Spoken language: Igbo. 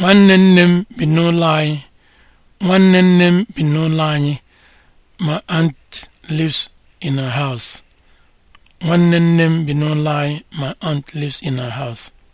nwanne nne m bi n'ụlọ anyị nwanne nne m bi n'ụlọ anyị in my aunt lives in her house